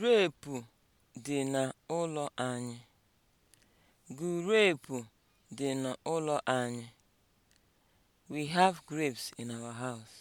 Gurepu dị n'ụlọ anyị. Gurepu dị n'ụlọ anyị. We have grapes in our house.